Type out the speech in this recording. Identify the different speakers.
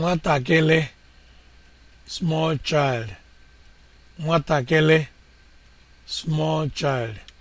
Speaker 1: nwatakịrị small child nwatakịrị small child